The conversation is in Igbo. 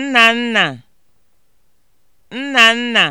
nna nna nna nna.